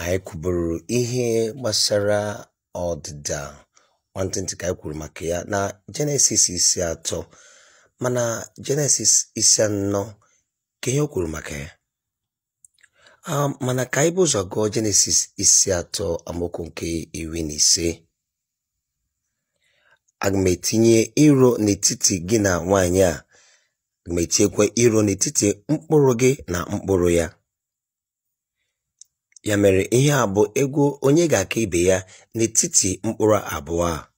anyị kwuburu ihe gbasara ọdịda nwantịntị ka anyị kwuru maka ya na jenesis isi atọ mana jenesis isi anọ ka ihe o kwuru maka ya mana ka anyị bụ ụzọ gụọ jenesis isi atọ amaokwu nke iri na ise aga m etinye iro n'etiti gị na nwaanyị a aga m etinyekwa iro n'etiti mkpụrụ gị na mkpụrụ ya Ya mere ihe a bụ egwu onye ga-aka ibe ya n'etiti mkpụrụ abụọ a.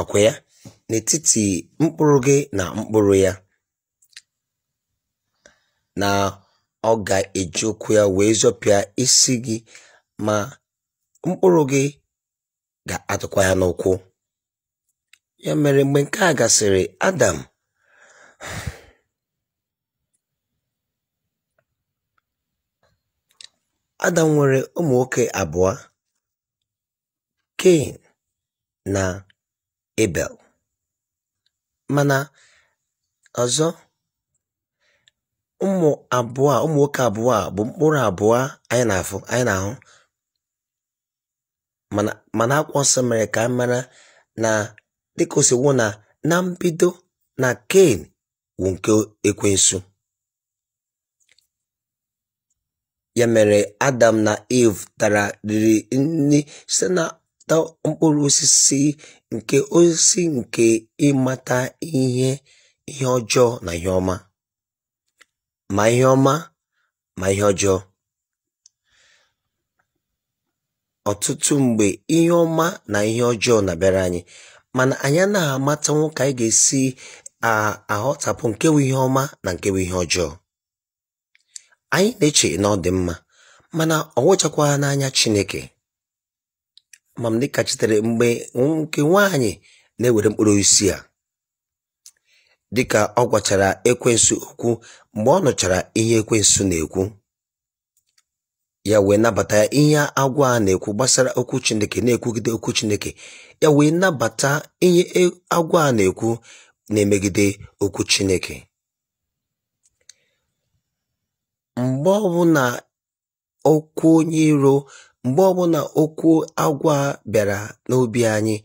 Ọkwa ya? N'etiti mkpụrụ gị na mkpụrụ ya. Na ọ ga-eji ụkwụ ya wee zọpịa isi gị ma mkpụrụ gị ga-atụkwa ya n'ụkwụ. Ya mere mgbe nke a gasịrị Adam Adam nwere ụmụ nwoke abụọ, Cain na abel mana ọzọ ụmụ abụọ a ụmụ nwoke abụọ a bụ mkpụrụ abụọ anyị na ahụ mana akwa Nsọ mere ka anyị mara na dịka na na mbido na Cain wụ nke Ekwensu Ya mere Adam na Eve tara riri nri site na mkpụrụ osisi nke osisi nke ịmata ihe ihe ọjọọ na ihe ọma, ma ihe ọma ma ihe ọjọọ. Ọtụtụ mgbe ihe ọma na ihe ọjọọ na-abịara anyị, mana anyị anaghị amata ka anyị ga-esi aghọtapụ nke bụ ihe ọma na nke ihe ọjọọ. Anyị na-eche na ọ dị mma, mana ọ wụchakwaghị n'anya Chineke. mamdịka chitere mgbe nke nwaanyị na-ewere mkpụrụ isi a dịka ọ gwachara ekwensu okwu mgbe ọ nụchara ihe ekwensu na-ekwu ya wee nabata ihe agwa a na-ekwu gbasara okwu Chineke na-ekwugide okwu Chineke ya wee nabata ihe e-, agwa a na-ekwu na-emegide okwu Chineke mgbe ọbụla okwu onye iro mgbe ọbụla okwu agwọ a bịara n'obi anyị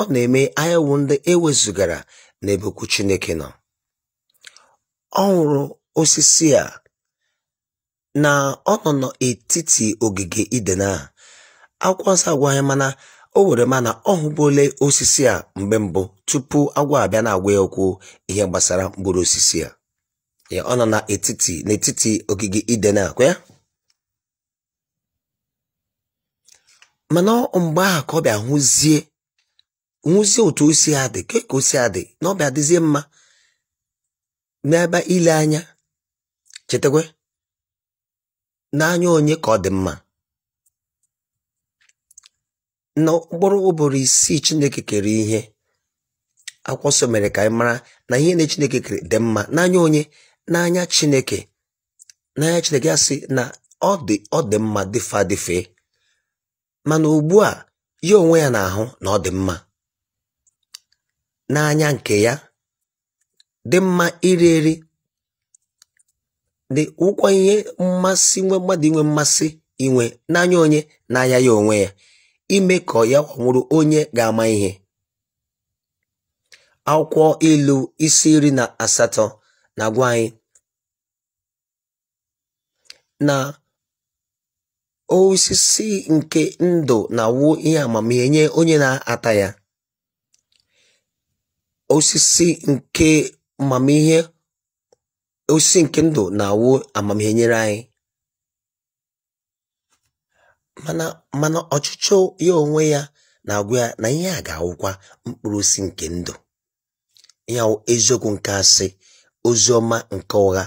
ọ na-eme anyị ndị e wezugara n'ebe okwu chineke nọ ọ hụrụ osisi a na ọ nọ n'etiti ogige iden a akwụ nsọ agwa anyị mana o were mana ọ hụbole osisi a mgbe mbụ tupu agwọ abịa na-agwa ya okwu ihe gbasara mkpụrụ osisi a ọ nọ n'etiti n'etiti ogige iden akwụ ya mana mgbe ahụ ka ọ bịa hụzie hụzie otu osi si adị ka osi adị na ọ bịa dịzie mma n'ebe ile anya chetakwe n'anya onye ka ọ dị mma na mkpụrụ ụbọrọ isii Chineke kere ihe akwụkwọ mere ka anyị mara na ihe na Chineke kere dị mma n'anya onye n'anya Chineke Chineke ya sị na ọ dị ọ dị mma dịfe adịfe mana ugbu a ya onwe ya na-ahụ na ọ dị mma n'anya nke ya dị mma iri eri dị ụkwọ ihe mmasị nwe mmadụ inwe mmasị inwe n'anya onye anya ya onwe ya ime ka ya nwụrụ onye ga-ama ihe akwụkwọ ilu isi iri na asatọ na-agwa anyị na osisi nke ndụ na-awụ ihe amamihe nye onye na-ata ya, osisi nke amamihe osisi nke ndụ na-awụ amamihe nyere anyị. Mana mana ọchịchọ ya onwe ya na-agwa ya na ihe a ga-awụkwa mkpụrụ osisi nke ndụ. Ya eziokwu nke asị, ozi ọma nke ụgha.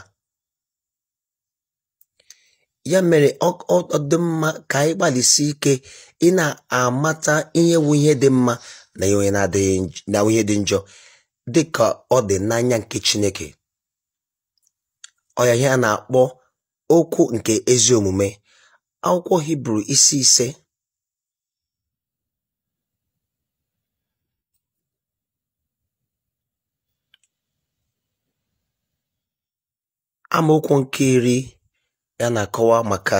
ya mere ọ dị mma ka anyị gbalịsi ike ị na-amata ihe wu ihe dị mma na ihe dị njọ dị ka ọ dị n'anya nke Chineke ọya ihe a na-akpọ okwu nke ezi omume akwụkwọ Hibru isi ise amaokwu nke iri ya na-akọwa maka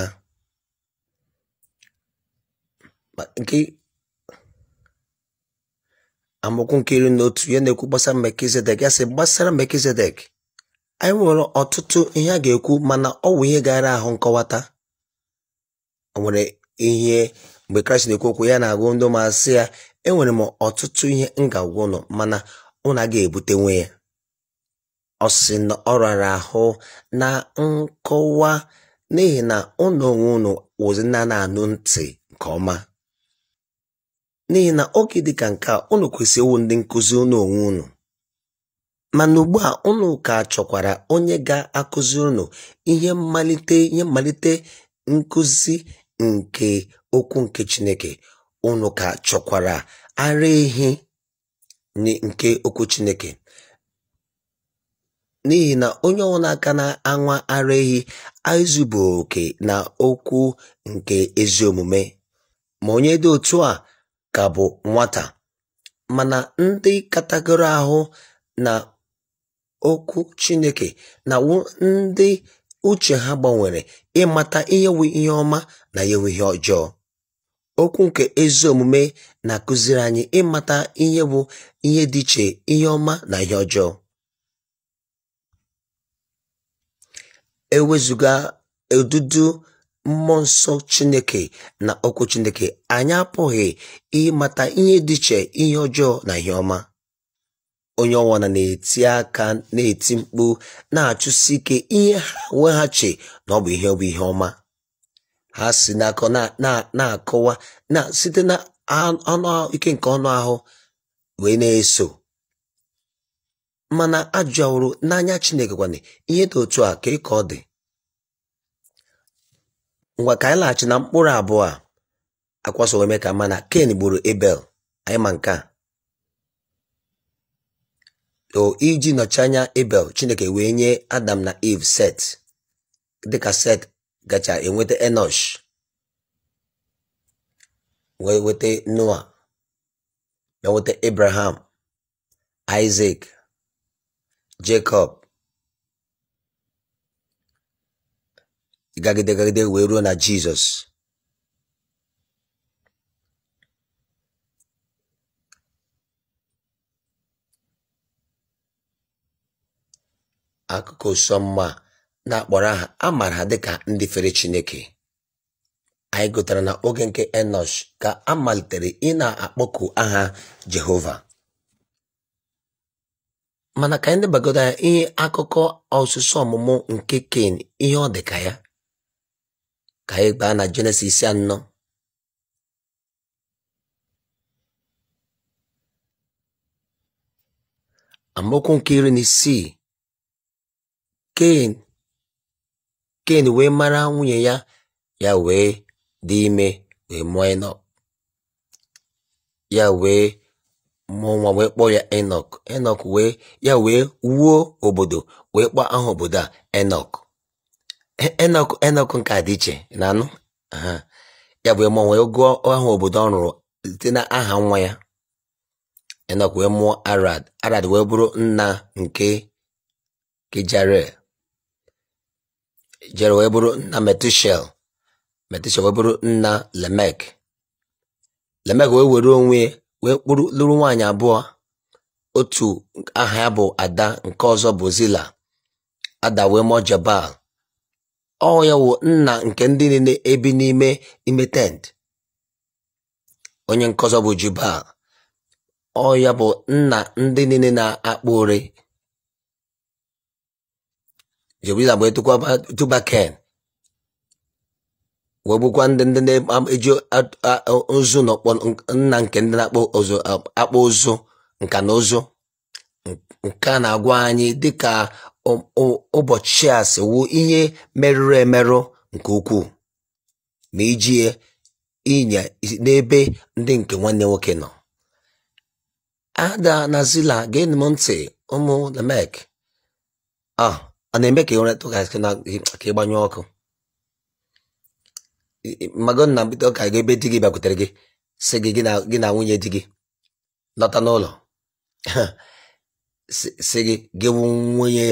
nke amaokwu nke iri na otu ya na-ekwu gbasara Melkizedek ya sị gbasara Melkizedek anyị nwere ọtụtụ ihe a ga-ekwu mana ọ wụ ihe gara ahụ nkọwata o nwere ihe mgbe Kraịst na-ekwu okwu ya na-agụ ndị masị ya enwere m ọtụtụ ihe m ga-agwa ụnụ mana ụnụ ebute ebutenwe ya ọ sị na ọ rara ahụ na nkọwa n'ihi na ụnụ onwe unu wụzi na na-anụ ntị nke ọma n'ihi na oge dịka nke a ụnụ kwesịrị ịwụ ndị nkụzi ụnụ onwe unu mana ugbu a ụnụ ka chọkwara onye ga-akụzi ụnụ ihe mmalite ihe mmalite nkụzi nke okwu nke Chineke ụnụ ka chọkwara ara ehi nke okwu Chineke n'ihi na onye ọbụla aka na-anwa ara ehi bụ oke na okwu nke ezi omume ma onye dị otu a ka bụ nwata mana ndị katagoro ahụ na okwu Chineke na ndị uche ha gbanwere ịmata ihe ihe ọma na ihe ihe ọjọọ okwu nke ezi omume na-akụziri anyị ịmata ihe bụ ihe dị iche ihe ọma na ihe ọjọọ ewezụga odudu mmụọ nsọ chineke na okwu chineke anyị apụghị ịmata ihe dị iche ihe ọjọọ na ihe ọma onye ọnwana na-eti aka na-eti mkpu na-achụsi ike ihe ha weghachi na ọ bụ ihe ọ bụ ihe ọma ha si n'akọ na-akọwa na site na nke ọnụ ahụ wee na-eso mana ajụworo n'anya Chineke kwana ihe dị otu a ka ị ka ọ dị ngwa ka anyị laghachi na mkpụrụ abụọ a akwaso ka mana Ken gburu Ebel anyị ma nke a o iji nọchi anya Ebel Chineke wee nye Adam na Eve Set dịka Set gacha enweta Enosh wee Noa enweta nweta Abraham jakob gagide gagide wee ruo na Jizọs akụkọ sọmma na-akpọrọ aha a mara ha dịka ndị fere Chineke anyị gụtara na oge nke Enosh ka a malitere ị na-akpọku aha Jehova mana ka anyị debagoro ya ihe akụkọ ọsụsụ ọmụmụ nke Ken ihe ọ dị ka ya ka anyị gbaa na Jenesis anọ amaokwu nke iri na isii Ken Ken wee mara nwunye ya ya wee dị ime wee mụọ ịnọ ya wee nwa wee kpọọ ya enok enok wee ya wee wuo obodo wee kpọọ aha obodo a enok e, enok enok nke a dị iche na anụ ya wee mụọ wee gụọ aha obodo ọ rụrụ site na aha nwa ya enok wee mụọ arad arad wee bụrụ nna nke Jerel jere wee bụrụ nna metushel metushel wee bụrụ nna lemek lemek wee were onwe wee kpụrụ lụrụ nwaanyị abụọ otu aha ya bụ ada nke ọzọ bụ Zila ada wee mụọ Jabal ọ ya wụ nna nke ndị niile ebi n'ime ime tent onye nke ọzọ bụ Jubal ọ ya bụ nna ndị niile na-akpụ ore Jebila bụ Tubaken wee bụkwa ndị ndị na-eji ozu n'ọkpọ nna nke ndị na-akpọ ozu akpọ ozu nka na ozu nke a na-agwa anyị dịka ụbọchị a siwu ihe merụrụ emerụ nke ukwuu ma iji ịnya n'ebe ndị nke nwanne nwoke nọ ada na zila geenụ m ntị ụmụ namek a ah, na-eme ka ịgbanyụ ọkụ mago na mbido ka ga ebe di gị bịakwutere gị si gị gị na nwunye di gị lọta n'ụlọ si gị gị nwunye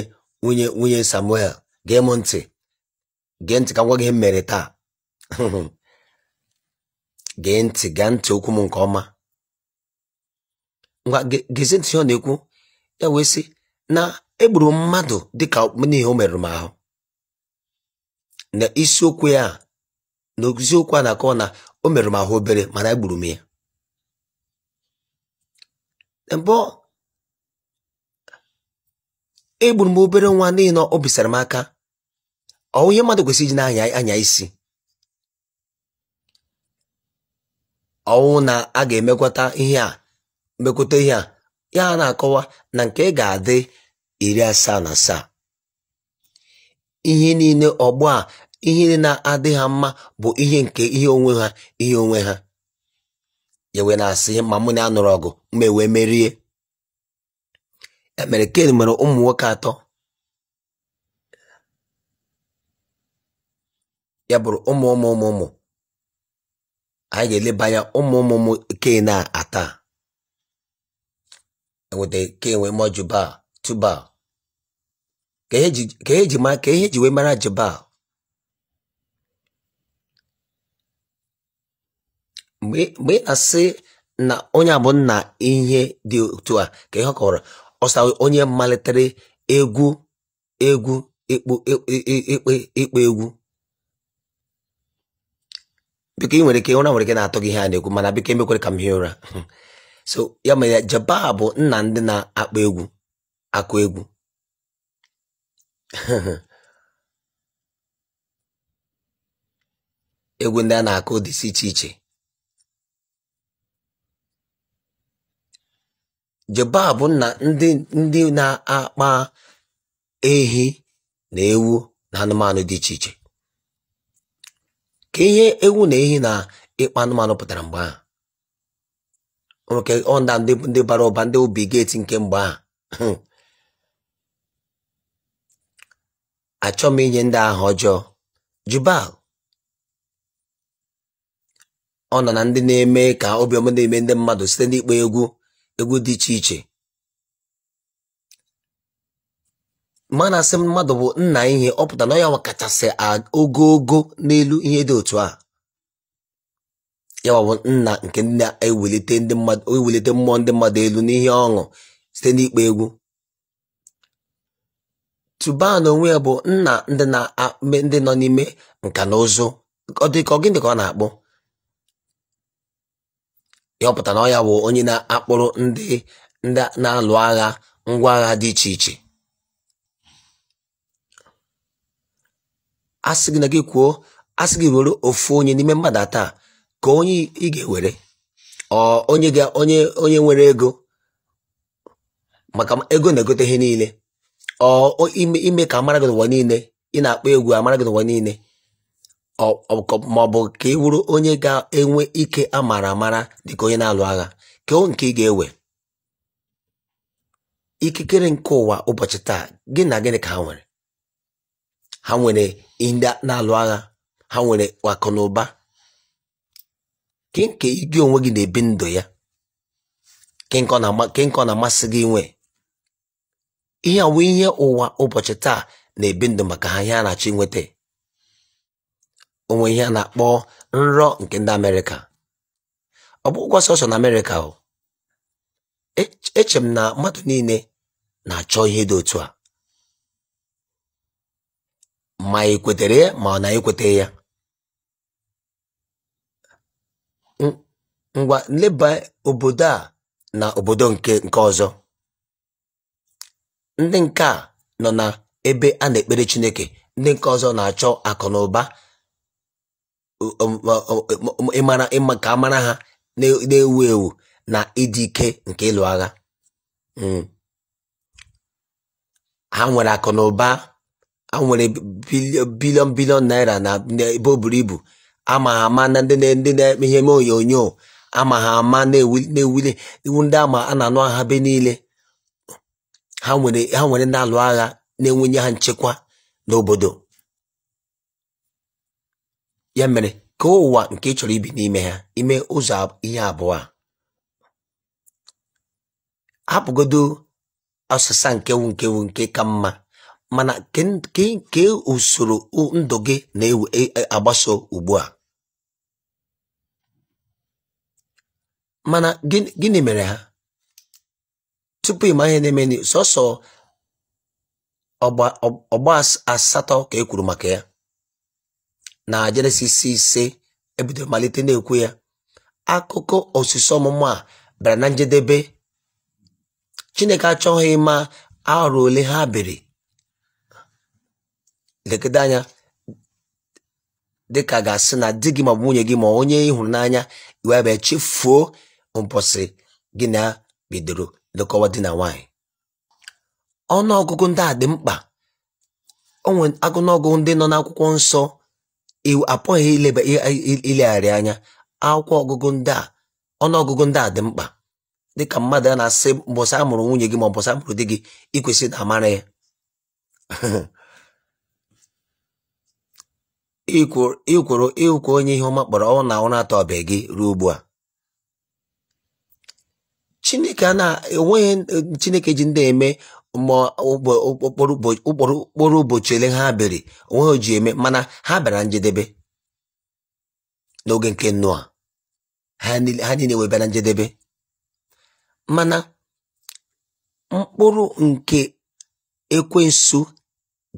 nwunye nwunye Samuel gee m ntị gee ntị ka ngwa gị mere taa gee ntị gee ntị okwu m nke ọma ngwa gezi ntị ọ na-ekwu ya wee sị na egburu mmadụ dịka n'ihi o merụrụ m ahụ na isiokwu ya okwu a na-akọ na o mere m ahụ obere mana egburu m ya mbụ egburu m obere nwa n'ihi na o bisara m aka ọwụ ihe mmadụ kwesịrị iji na-anya isi ọwụ na a ga emekọta ihe a ihe a ya na-akọwa na nke ga-adị iri asaa na asaa ihe niile ọgbọ ihe na-adị ha mma bụ ihe nke ihe onwe ha ihe onwe ha Yewe na-asị ma mụ na a nụrụ ọgụ ma ewee merie emere Ken nwere ụmụ nwoke atọ ya bụrụ ụmụ ụmụ ụmụ ụmụ anyị ga elebanye anya ụmụ ụmụ ụmụ Ken a ata enweta Ken wee Tubal ka ihe ji wee mara jibal. mgbe ị na-asị na onye abụ nna ihe dị otu a ka ihe ọkọrọ ọsa onye malitere egwu egwu ikpe e, e, e, egwu biko ị nwere ike ụra nwere ike na-atọ gị ihe a na egwu mana biko emekwere ka m hie ụra so ya mere jeba bụ nna ndị na-akpọ egwu akụ egwu egwu ndị a na-akụ dịsị iche iche bụ na ndị ndị na-akpa ehi na ewu na anụmanụ dị iche iche. Ka ihe ewu na ehi na ịkpa anụmanụ pụtara mgbe ahụ. Nwoke ọ ndị ndị bara ụba ndị obi geeti nke mgbe ahụ. Achọ m inye ndị ahụ ọjọọ. Jubal ọ nọ na ndị na-eme ka obiọma na-eme ndị mmadụ site n'ịkpa egwu egwu dị iche iche na asị mmadụ bụ nna ihe ọ pụta na ya kachasị ogologo n'elu ihe dị otu a ya bụ nna nke na-ewelite ndị mmadụ mmụọ ndị mmadụ elu n'ihe ọṅụ site n'ịkpa egwu tuban onwe ya bụ nna ndị na ndị nọ n'ime nka na ụzụ ọ dị ka ọ na akpụ yọpụta na ọ ya bụ onye na-akpụrụ ndị ndị na-alụ agha ngwa agha dị iche iche a sị gị na gị kwuo a gị were ofu onye n'ime mmadụ taa ka onye ị ga-ewere onye ga onye onye nwere ego maka ego na-egote ihe niile ọ ime ka amara gị n'ụwa niile ị na-akpọ egwu amara gị n'ụwa niile maọbụ ka ị wụrụ onye ga-enwe ike a mara amara dịka onye na-alụ agha keo nke ị ga-ewe ikikere nke ụwa ụbọchị taa gị na gịnị ka ha nwere ha nwere ndị na-alụ agha ha nwere akụ na ụba kenke gị onwe gị na-ebi ndụ ya kenke ọ na-amasị gị nwe ihe awụ ihe ụwa ụbọchị taa na-ebi ndụ maka ha ihe a na-achọ inweta onwe ihe a na-akpọ nrọ nke ndị amerịka ọ bụ ụgwọ sọsọ na amerịka o e, eche m na mmadụ niile na-achọ ihe dị otu a ma ekwetere ya ma ọ na ekweta ya ngwa nleba obodo a na obodo nke nke ọzọ ndị nke a nọ na ebe a na-ekpere Chineke ndị nke ọzọ na-achọ akụ na ụba Um, um, um, ịma ka amara ha na-ewu ewu na ịdị ike nke ịlụ agha hmm. ha nwere akụ na ụba ha nwere bilion bilion naira na ebe o buru ibu ama ha ama na ndị na-eme ihe eme onyonyo ama ha ama na-ewuli iwu ndị ama a na-anụ agha be niile ha nwere na alụ agha na-enwenye ha nchekwa n'obodo Ya mere ka ụwa nke ị chọrọ ibi n'ime ha ime ụzọ ihe abụọ a hapụgodu ọsịsa nkewu nkewu nke ka mma mana ke usoro ndụ gị na-agbaso e, e, ugbu a mana gịnị mere ha tupu ịma ihe na-eme sọsọ ọgba asatọ ka e kwuru maka ya na jenesis ise ebido malite na-ekwu ya akụkọ osisi ọmụmụ a bịara na njedebe chineke achọghị ịma arụ ole ha biri lekede anya dịka ga-asị na di gị ma bụ nwunye gị ma onye ịhụnanya n'anya iwe ebe chefuo mposi gị na bidoro lekọwa di na ọnụ ọgụgụ ndị a dị mkpa agụnọgụ ndị nọ n'akwụkwọ nsọ apụghị ileba ilegharị anya akwụkwọ ọgụgụ ndị a ọnụọgụgụ ndị a dị mkpa dịka mmadụ a na-asị mbọsị a mụrụ nwunye gị ma mbọsị a mụrụ di gị ikwesị na amara ya ikworo ịkwụ onye ihe ọma kpọrọ ọnwụ na ọnwụ atọ atọbe gị ruo ugbu a Chineke a na-enweghị Chineke ji ndị eme okporo ụbọchị ele ha bịara onweghị ji eme mana ha bịara njedebe n'oge nke nnụa ha niile wee bịara njedebe mana mkpụrụ nke ekwensu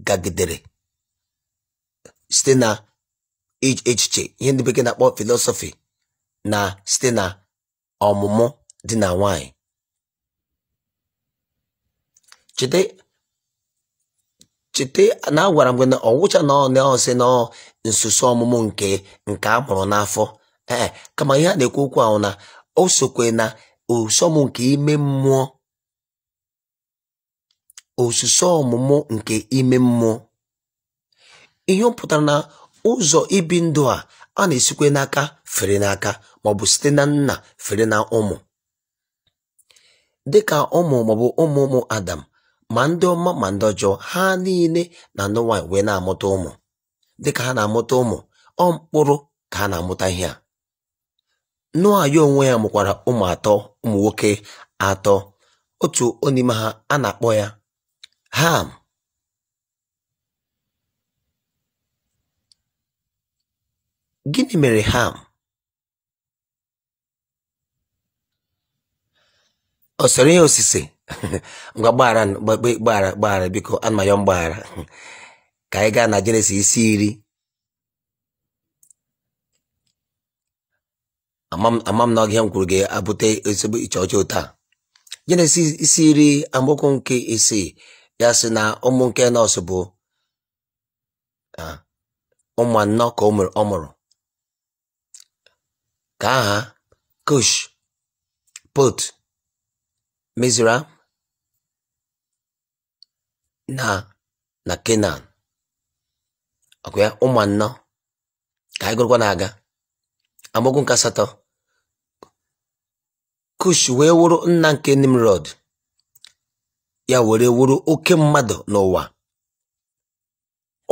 gagidere site na echiche ihe ndị bekee na-akpọ filosofi na site na ọmụmụ dị na nwanyị cheta cheta na agwara m gị na ọwụcha na ọ na na nsụsụ ọmụmụ nke nke a mụrụ n'afọ ee kama ihe a na-ekwu okwu ahụ na o sokwe na osọmụ nke ime mmụọ ọmụmụ nke ime mmụọ ihe ọ pụtara na ụzọ ibi ndụ a a na-esikwe n'aka fere n'aka maọbụ site na nna fere na ụmụ dịka ụmụ maọbụ ụmụ ụmụ Adam ma ndị ọma ma ndị ọjọọ ha niile na ndị nwaanyị wee na-amụta ụmụ dịka ha na-amụta ụmụ ọ mkpụrụ ka ha na-amụta ihe a Noa ya onwe ya mụkwara ụmụ atọ ụmụ nwoke atọ otu onime ha a na-akpọ ya Ham gịnị mere Ham ọ sọrọ ihe osise ngwa gbaghara gbaghara gbaghara biko ana ma ayọ mgbaghara ka anyị gaa na jenesis isi iri ama m na ya m kwuru ga-abụte ezigbo iche ọjọọ taa jenesis isi iri amaokwu nke isii ya sị na ụmụ nke nọọsụ bụ ụmụ anọ ka ọ mụrụ ka aha kush pot mezuru na na Kenan ọkwa ya ụmụ anọ ka anyị gụrụkwa na-aga amaokwu nke asatọ kush wee wụrụ nna nke nimrod ya were wụrụ oke mmadụ n'ụwa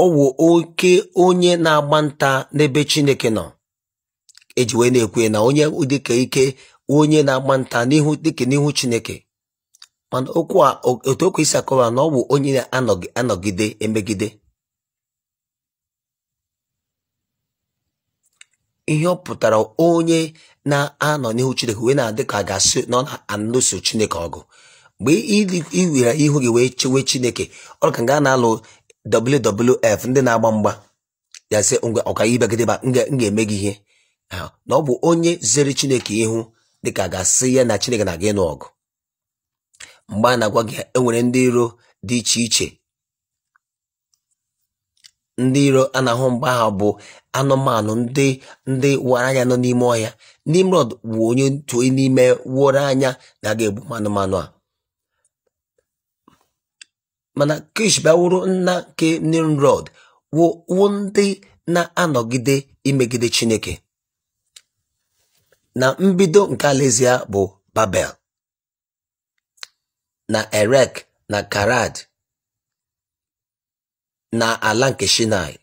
ọ oke onye na-agba nta n'ebe chineke nọ eji wee na-ekwe na onye dịka ike onye na-agba nta dịka n'ihu chineke mana okwu a otu okwu isi akọwa na ọ bụ onye na-anọgide emegide ihe ọ pụtara onye na-anọ n'ihu Chineke wee na-adị ka ga-asị na ọ na-alụso Chineke ọgụ mgbe iwere ihu gị wee chewe Chineke ọ ka nga na-alụ WWF ndị na-agba mgba yazị ngwa ọkaibegideba m ga-eme gị ihe na ọ bụ onye zere Chineke ihu dịka ga-asị ya na Chineke na-aga ịnụ ọgụ mgbe a na-agwa gị enwere ndị iro dị iche iche ndị iro a na-ahụ mgbe ahụ bụ anụmanụ ndị ndị wara anya nọ n'ime ọhịa Nimrod bụ onye otu n'ime wụrụ anya na-aga egbu anụmanụ a mana Kish bịawuru nna nke Nimrod wụ ndị na-anọgide imegide Chineke na mbido nke alaeze ya bụ Babel na Erek na Karad na ala nke Shinai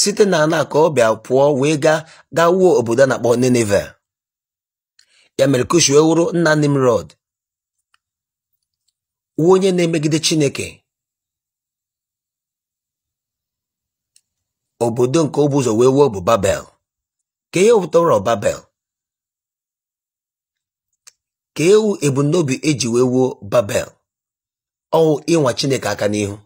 site na ana ka ọ bịa pụọ wee gaa gaa obodo a na-akpọ Nineve ya mere Kush wee wụrụ nna Nimrod wuo onye na-emegide Chineke obodo nke obuzo wee wuo bụ Babel ka ihe pụtara Babel ka ewu ebumnobi eji wee wuo babel ọwụ ịnwa chineke aka n'ihu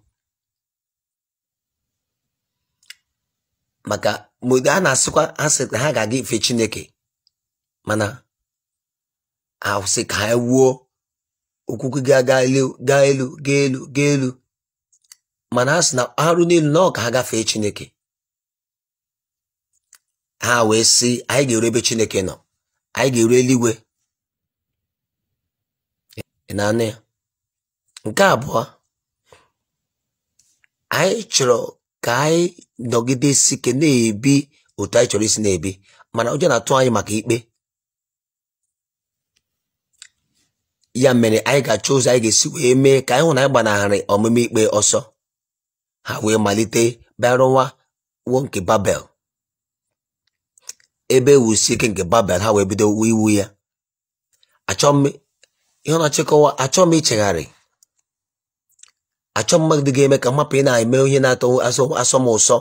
maka mgbe a na-asịkwa ha sị na ha ga-aga ife chineke mana ahụsị ka ha wuo okwukwe ga elu gaa elu gaa elu ga elu mana ha sị na arụ n'elu na ọ ka ha gafee chineke ha wee sị anyị ga-eru ebe chineke nọ anyị ga-eru eluigwe ị ya nke abụọ anyị chọrọ ka anyị nọgidesi ike na-ebi otu anyị chọrọ isi na-ebi mana ụjọ na-atụ anyị maka ikpe ya mere anyị ga-achọ ụzọ anyị ga-esi wee mee ka anyị hụ na anyị gbanarị ọmụmụ ikpe ọsọ ha wee malite bịarụwa wo nke babel ebe e wusi ike nke babel ha wee bido iwu ya achọ m ihe ọ achọ m ichegharị achọ mmadụ ga-eme ka mmapụ ị na-eme ihe na-atọ asọ m ụsọ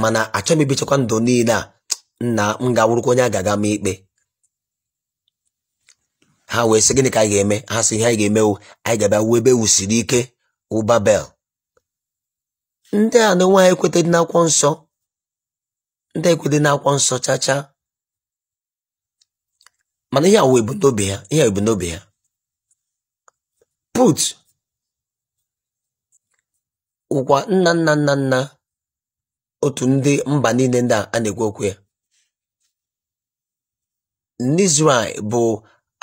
mana achọ m ibichakwa ndụ niile a na m ga-awụrụkwa onye a ga-aga m ikpe ha wee sị gịnị ka anyị ga-eme ha sị ihe anyị ga-eme anyị ga-abịa ebe e wusiri ike ụbabel ndị a na nwe ha ekwetedị n'akwụkwọ nsọ ndị ekwetedị n'akwụkwọ nsọ chachaa mana ihe a wụ ebumnobi ha ihe put ụkwa nna nna nna nna otu ndị mba niile ndị a na-ekwu okwu ya n'izraị bụ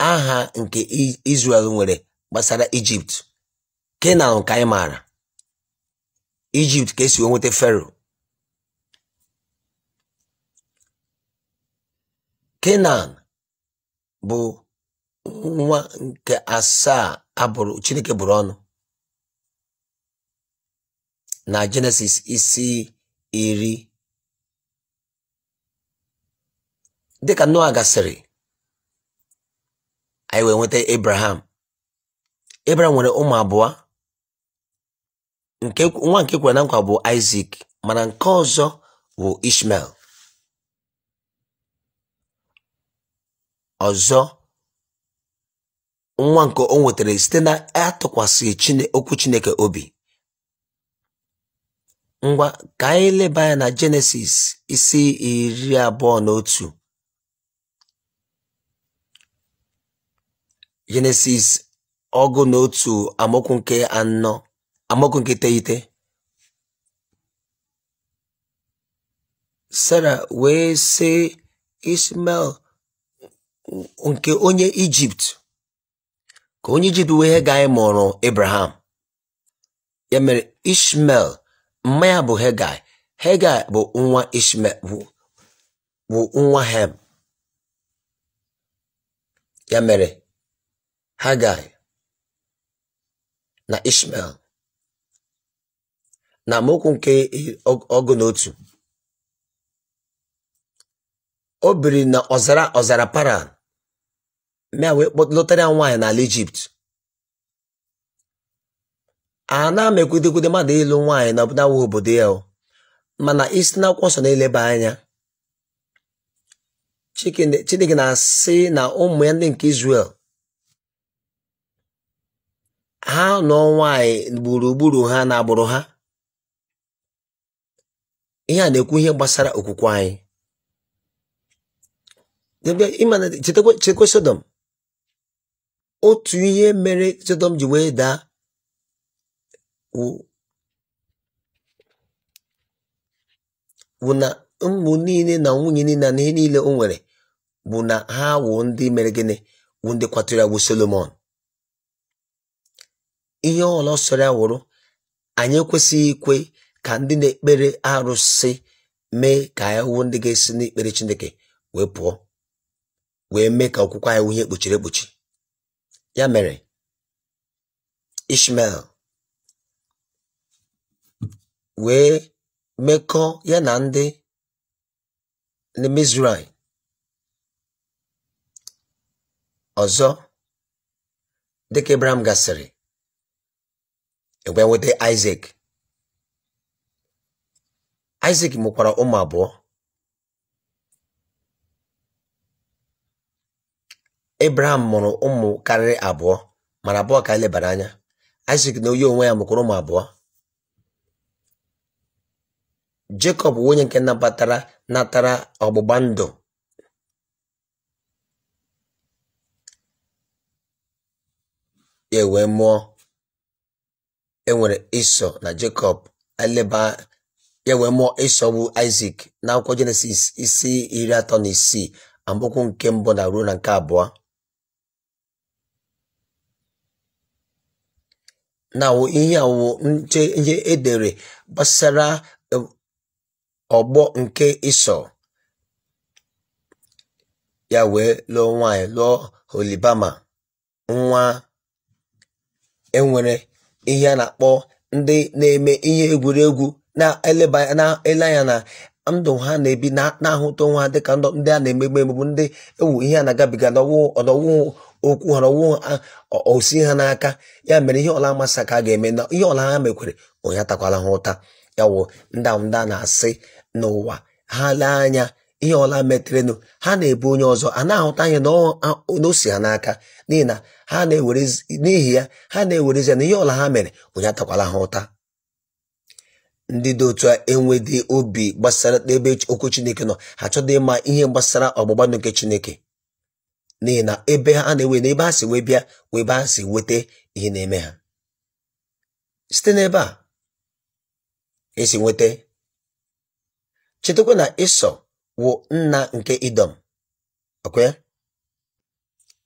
aha nke izrel nwere gbasara Ijipt Kenan ka anyị maara Ijipt ka esi nweta Fero Kenan bụ nwa nke asaa abụrụ chineke bụrụ ọnụ na jenesis isi iri dịka noa gasịrị anyị wee nweta abraham abraham nwere ụmụ abụọ nwa nke kwere na nkwa bụ isak mana nke ọzọ bụ ishmael Ọzọ, nwa nke o nwetara site na Chine okwu Chineke obi. Ngwa ka anyị leba anya na Jenesis isi iri abụọ na otu. Jenesis ọgụ na otu nke anọ amaokwu nke iteghete. Sara wee sị ismail nke onye ijipt ka onye ijipt wee hegai mụrụ Ibrahim ya mere ishmael mma ya bụ hegai hegai bụ nwa ishmael bụ nwa hem ya mere hegai na ishmael na amaokwu nke ọgụ na otu o biri na ọzara ọzara paran mea wee lụtara ya nwaanyị n'ala ijipt a na-amekwudekwude mmadụ ịlụ nwaanyị na ọbụla obodo ya mana isi n'akwụkwọ nsọ na-eleba anya chineke na-asị na ụmụ ya ndị nke Izrel ha nọ nwaanyị gburugburu ha na agbụrụ ha ihe a na-ekwu ihe gbasara okwukwe anyị Sodom otu ihe mere Sọdọm ji wee daa bụ na ụmụ niile na nwunye niile na ihe niile o nwere bụ na ha wụ ndị mere gịnị wụ ndị kwatụrụ wụ Solomon ihe ọla sọrọ ya wụrụ anyị ekwesịghị ikwe ka ndị na-ekpere arụsị mee ka anyị wụ ndị ga-esi n'ikpere Chineke wee pụọ wee mee ka okwukwe anyị wụ ihe kpuchiri ekpuchi Ya mere, Ishmael wee mekọọ ya na ndị Mizraim ọzọ dịka ibrahim gasịrị e wee nweta Isaac Isaac mụkwara ụmụ abụọ Ebraham mụrụ ụmụ karịrị abụọ mara abụọ ka anyị lebara anya Isaac na onye onwe ya mụkwara ụmụ abụọ Jekọb bụ nke nabatara natara ọgbụgba ndụ ya mụọ enwere Ịsọ na Jekọb eleba ya wee mụọ e Ịsọ e bụ Isaac n'akwụkwọ Jenesis isi iri atọ na isii amaokwu nke mbụ na ruo na nke abụọ na ihe a nche ihe edere gbasara e, ọgbọ nke iso ya wee lụọ nwanyị lụọ holibama nwa enwere ihe a na-akpọ ndị na-eme ihe egwuregwu na-eleba ele anya na ndụ ha na-ebi na-ahụta onwe ha dịka ndị a na-emegbu emegbu ndị ewu ihe a na-agabiga n'ọwụ ọdọwụ okwu ghara ọwụ osi ha n'aka ya mere ihe ọla amasị ka a ga-eme na ihe ọla ha mekwere ụnya takwala ha ụta ya wụ ndanda na-asị n'ụwa ha lee anya ihe ọla meterenụ ha na-ebu onye ọzọ a na-ahụta anya na ha n'aka n'ihi na ha n'ihi ya ha na-ewerezi ya na ihe ọla ha mere ụnya takwala ha ụta ndị dị otu a obi gbasara n'ebe okwu Chineke nọ ha chọdọ ịma ihe gbasara ọgbụgba nke Chineke n'ihi na ebe ha na-ewe na ebe ha si wee bịa wee ebe ha si nweta ihe na-eme ha site n'ebe a esi nweta chetakwa na ịsọ wụ nna nke idọm okwe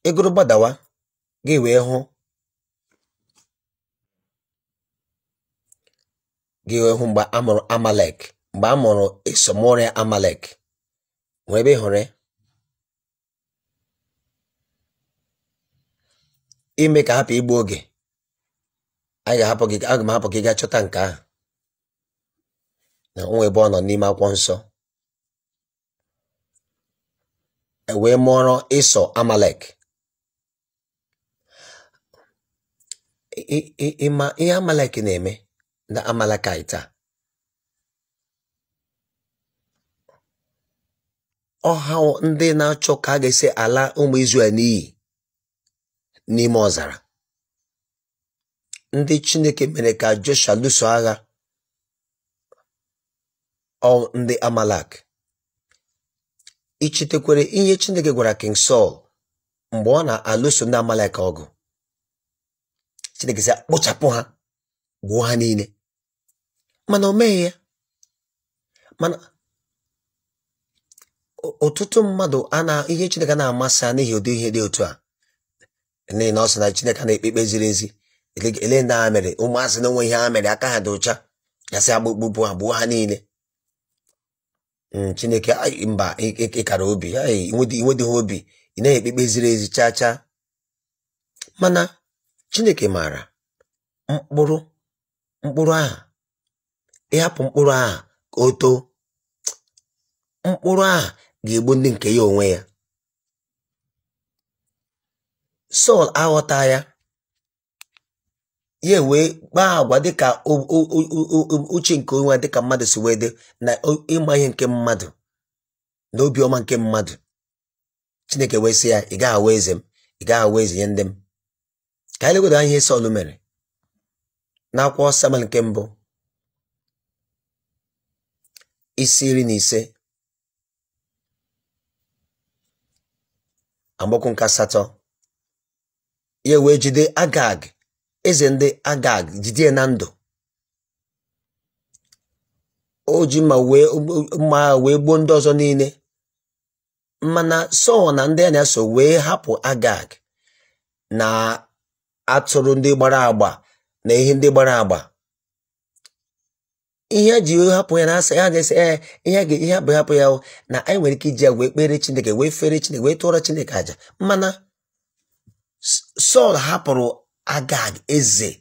ịgụrụ gbadawa ga wee hụ gị wee hụ mgbe amụrụ amalek mgbe a mụrụ ịsọ mụrụ amalek nwere ebe ị hụrụ ya ime ka hapụ igbu oge aga m hapụ gị gaa chọta nke a na onwe ebe ọ nọ n'ime akwụkwọ nsọ e mụọrọ ịsọ amalek ịma ihe amalek na-eme na amalekaita ọha ndị na-achọ ka a ga-esi ala ụmụ Izrel n'iyi n'ime ọzara ndị Chineke mere ka Joshua lụso agha ọ ndị Amalak ichetekwere ihe Chineke gwara King sol mgbe ọ na-alụso ndị Amalek ọgụ Chineke sị kpochapụ ha gbuo ha niile mana o meghị ya mana ọtụtụ mmadụ ana ihe Chineke na-amasị ha n'ihi ụdị ihe dị otu a n'ihi na ọ na Chineke na-ekpe ziri ezi ele ndị mere ụmụazị na onwe ihe a mere aka ha dị ụcha gasị agbụkpụ ha gbuo ha niile hmm, Chineke mba ịkara obi ha obi ị na ekpe ziri ezi chaa chaa mana Chineke maara mkpụrụ mkpụrụ aha ịhapụ mkpụrụ aha ka o too mkpụrụ aha ga-egbu ndị nke ya onwe ya Sọl aghọta ya ya wee kpaa agwa dịka uche nke onwe dịka mmadụ si wee dị na ịma ihe nke mmadụ na obiọma nke mmadụ Chineke wee sị ya ị gaghị awa eze m ị gaghị awa eze nye ndị m ka anyị legodo ihe Sọl mere na akwụkwọ Samuel nke mbụ isi iri na ise amaokwu nke asatọ ya wee jide agag eze ndị agag jide na ndụ oji ma wee mma wee gbuo ndị ọzọ niile mana sọl na ndị a na-eso wee hapụ agag na atụrụ ndị gbara agba na ihe ndị gbara agba ihe a ji hapụ ya na-asa ya ga-ese eh, ya ihe ihe hapụ hapụ ya na anyị nwere ike iji ya wee kpere chineke wee fere chineke wee tụọrọ chineke aja mana sọl hapụrụ agag eze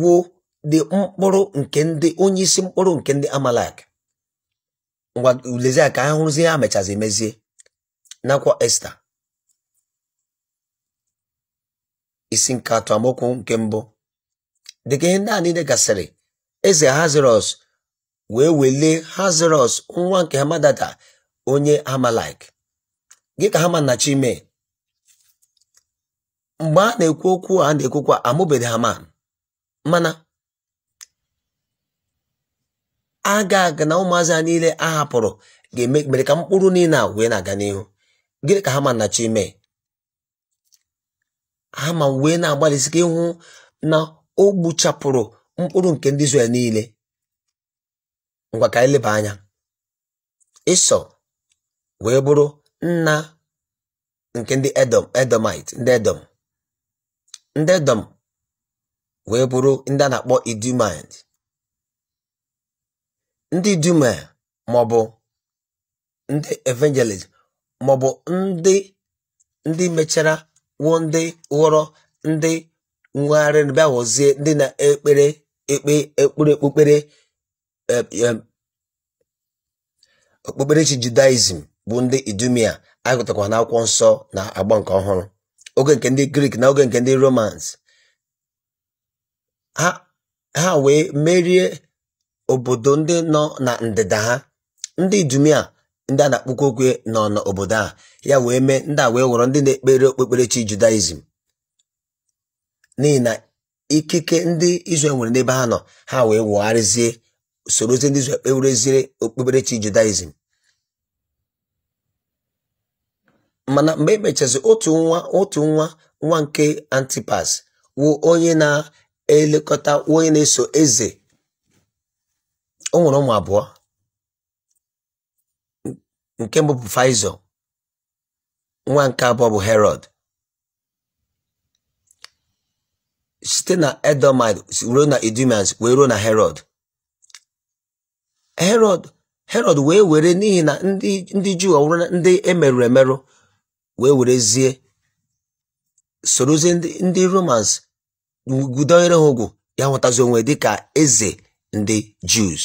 wụ dị mkpụrụ nke ndị onye isi mkpụrụ nke ndị amalek ngwa ka ha hụrụzie ha mechazi mezie nakwa esta isi nke atọ nke mbụ dịka ihe ndị a niile gasịrị eze hazirọs wee welie hazirọs nwa nke hamadata onye amalek gị ka hama nnachi mee mgbe a na-ekwu okwu a na-ekwukwa amụbeghị Haman mana aga na ụmụazị ha niile a hapụrụ ga-eme mere ka mkpụrụ niile a wee na-aga n'ihu gịnị ka hama na chọ ime ma wee na-agbalịsi ka ịhụ na o mkpụrụ nke ndị Izrel niile ngwa ka anya Ịsọ wee bụrụ nna nke ndị Edom Edomite ndị Edom ndị edom wee bụrụ ndị a na-akpọ idumind ndị idumail maọbụ ndị evangelist maọbụ ndị ndị mechara wuo ndị ghọrọ ndị nwegharị bịa ghọzie ndị na-ekpere ekpe ekpere okpukpere e, e, okpukperechi judaism bụ ndị idumia agụtakwa n'akwụkwọ nsọ na agba nke ọhụrụ oge nke ndị grik na oge nke ndị romans ha wee merie obodo ndị nọ na ndịda ha ndị dumia ndị a na-akpụkwa okwe nọ n'obodo a ya wee mee ndị a wee ghọrọ ndị na-ekpere okpukperechi judaism n'ihi na ikike ndị Israel nwere n'ebe ha nọ ha wee wụgharịzie ozi ndị izu kpewerezie okpukperechi judaism mana mgbe emechazi otu nwa otu nwa nwa nke antipas wụ onye na-elekọta onye na-eso eze o ụmụ abụọ nke mbụ bụ faizọ nwa nke abụọ bụ herod site na edomid ruo na edomians wee ruo na herod herod herod wee were n'ihi na ndị juu ọwụrụ ndị emerụrụ emerụ wee werezie sorozie ndị romans gudonyere ha ụgwụ ya nwetazi onwe dịka eze ndị Jews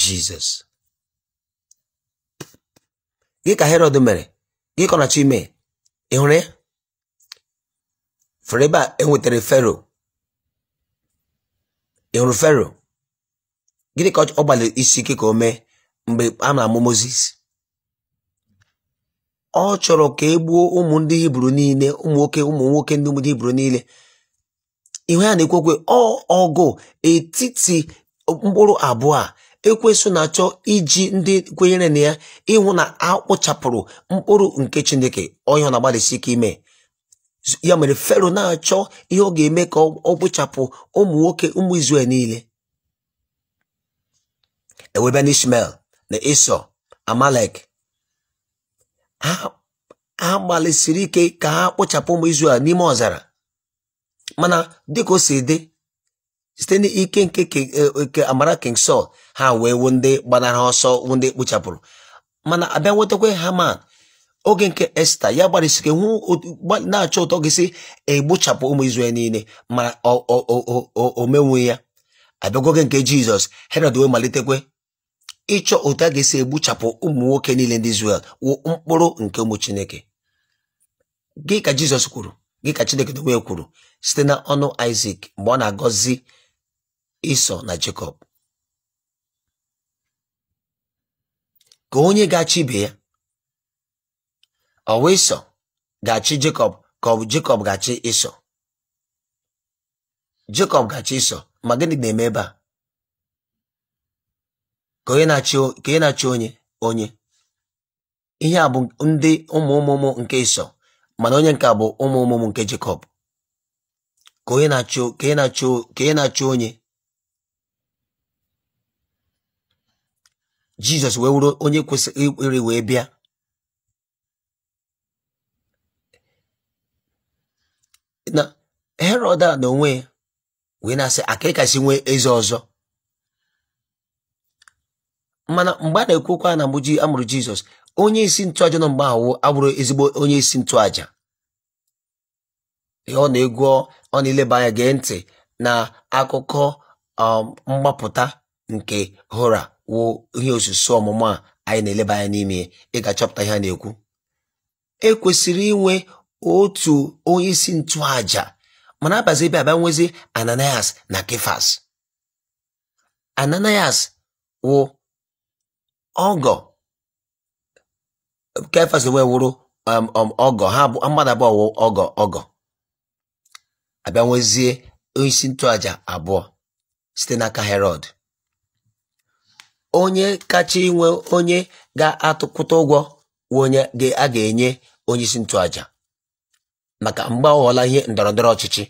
Jizọs gị ka Herod mere gị ka ọ ime ị hụrụ ya fere ebe enwetara Fero ị hụrụ Fero gịnị ka ọ gbalịrị isi ike ka o mee mgbe a na-amụ Moses ọ chọrọ ka e gbuo ụmụ ndị hibru niile ụmụ nwoke ụmụ nwoke ndị ndị hibru niile ihu ya na-ekwekwe ọgụ etiti mkpụrụ abụọ a ekwesị na-achọ iji ndị kwenyere na ya ịhụ na akpụchapụrụ mkpụrụ nke chineke onye ọ na-agbalịsi ike ime ya mere fero na-achọ ihe ọ ga-eme ka ọ kpụchapụ ụmụ nwoke ụmụ izrel niile ewebe na ishmael na amalek ha gbalịsiri ike ka ha kpochapụ ụmụ Izrel n'ime ọzara mana dịka o si dị site n'ike nke e, nke amara king sol ha wee wu ndị gbanara ọsọ wu ndị kpochapụrụ mana abịa nwetakwa Haman oge nke Esta ya gbalịsiri hụ na-achọ ụtọ gị si egbochapụ ụmụ Izrel niile mana o menwu ya abịago nke Jizọs Herọd wee malitekwe ịchọ otu a ga-esi egbuchapụ ụmụ nwoke niile ndị Izrel wụ mkpụrụ nke ụmụ Chineke gị ka Jizọs kwuru gị ka Chineke dowe kwuru site na ọnụ mgbe ọ na-agọzi isọ na Jekọb ka onye ga-achị ibe ya ọ ga-achị Jekọb ka ọ bụ Jekọb ga-achị Ịsọ Jekọb ga-achị Ịsọ ma gịnị na-eme ebe a ka onye na-achị onye onye ihe a bụ ndị ụmụ ụmụmụ nke Ịsọ mana onye nke bụ ụmụ ụmụmụ nke Jekọb ka onye na-achị onye Jizọs wee wuru onye kwesịrị iri wee bịa na Herọd a na onwe ya wee na-asị nwee eze ọzọ mana mgbe a na-ekwukwa na mgbe amụrụ Jizọs onye isi ntụaja nọ mgbe ahụ abụrụ ezigbo onye isi ntụaja ọ na-egwu ọ na-eleba anya gee ntị na akụkọ um, mgbapụta nke hora wụ ihe osusu ọmụmụ a anyị na-eleba anya n'ime ịga-achọpụta ihe a na-ekwu ekwesịrị inwe otu onye isi ntụaja mana abazi ebe abịa nwezi Ananias na Kefas Ananias wụ ọgọ ka e wee wụrụ um, um, ọgọ ha bụ mmadụ abụọ wụ ọgọ ọgọ abịa nwezie onyeisi ntụaja abụọ site n'aka herod onye kacha inwe onye ga-atụkwụta ụgwọ onye a ga-enye onye isi ntụaja maka mgbe ọ ihe ndọrọndọrọ ọchịchị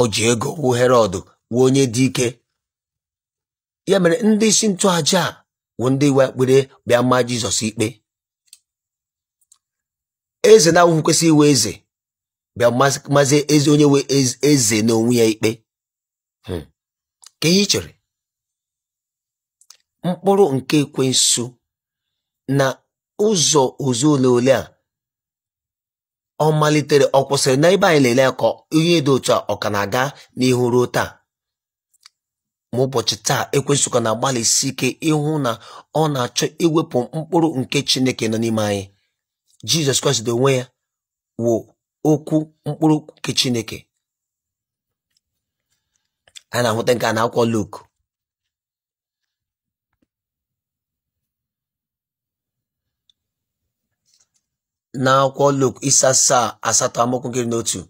oji ji ego wu herod wu onye dị ike ya mere ndị isi ntụaja wụ ndị iwe ekpere bịa mma jizọs ikpe eze na-awụghị kwesịrị iwe eze bịa mazi ezi onye nwe eze na onwe ya ikpe hmm. ka ihe chere mkpụrụ nke ekwensu na ụzọ ozu ole ole a ọ malitere ọ kwụsịrị na ebe anyị lele ya ka onye dị otu a ọ ka na-aga n'ihu ruo taa ma ụbọchị taa ekwensụka na-agbalịsi ike ịhụ na ọ na-achọ iwepụ mkpụrụ nke chineke nọ n'ime anyị jizọs kraịst onwe ya wụ okwu mkpụrụ nke chineke a na-ahụta nke a na-akwọ Luk n'akwụkwọ Luk isi asaa asatọ amaokwu nke n'otu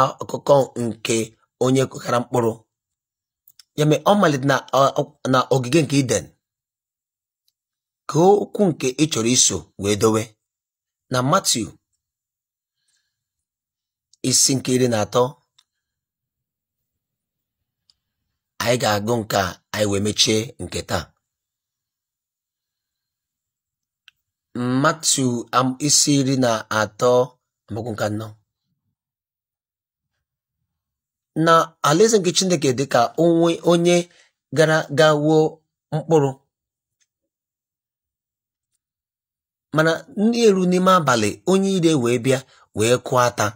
akụkọ nke onye kụkara mkpụrụ ya mee ọ malite na ogige nke Iden ka okwu nke ị chọrọ iso wee dowe na Matiu isi nke iri na atọ anyị ga-agụ nke anyị wee mechie nke taa Matiu isi iri na atọ amaokwu nke anọ na alaeze nke chineke dị ka onwe onye gara ga wuo mkpụrụ mana ndị elu n'ime abalị onye ire wee bịa wee kụọ ata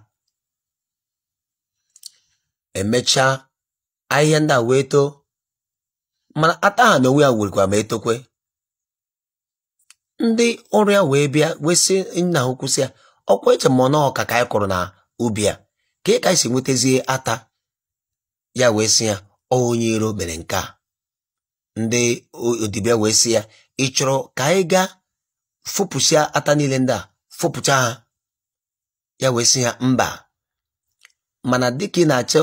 emechaa ahịhịa ndị a wee too mana ata ha na onwe ya werikwa ma etokwe ndị ọrịa wee bịa wee sị nna ha si ya ọkwa eche m ọnọọ ka ka anyị kụrụ na ubi a ka ị ka anyị si nwetazie ata ya wee sị ya onye iro mere nke a ndị odibịa wee sị ya ị chọrọ ka anyị gaa fopụsịa ata niile ndị a fopụcha ha ya wee sị ya mba mana dịka ị na-achọ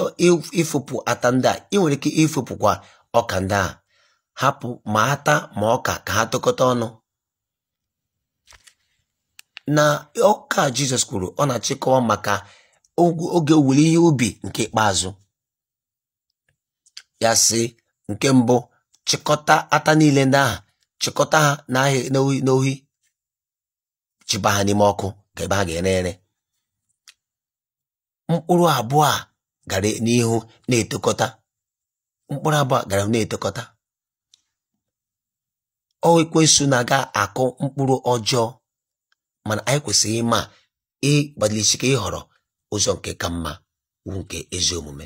ịfụpụ ata ndị a ị nwere ike ịfopụkwa ọka ndị a hapụ ma ata ma ọka ka ha tụkọta ọnụ na ọka Jizọs kwuru ọ na-achịkọwa maka oge owuwe ihe ubi nke ikpeazụ ya sị nke mbụ chịkọta ata niile ndị ahụ chịkọta ha n'ohi n'ohi chịba ha n'ime ọkụ ka ebe ha ga-ere ere mkpụrụ abụọ gara n'ihu na-etokọta mkpụrụ abụọ gara na-etokọta ọ na-aga akụ mkpụrụ ọjọọ mana anyị kwesịrị ịma ịgbalịsike ịhọrọ ụzọ nke ka mma wu nke ezi omume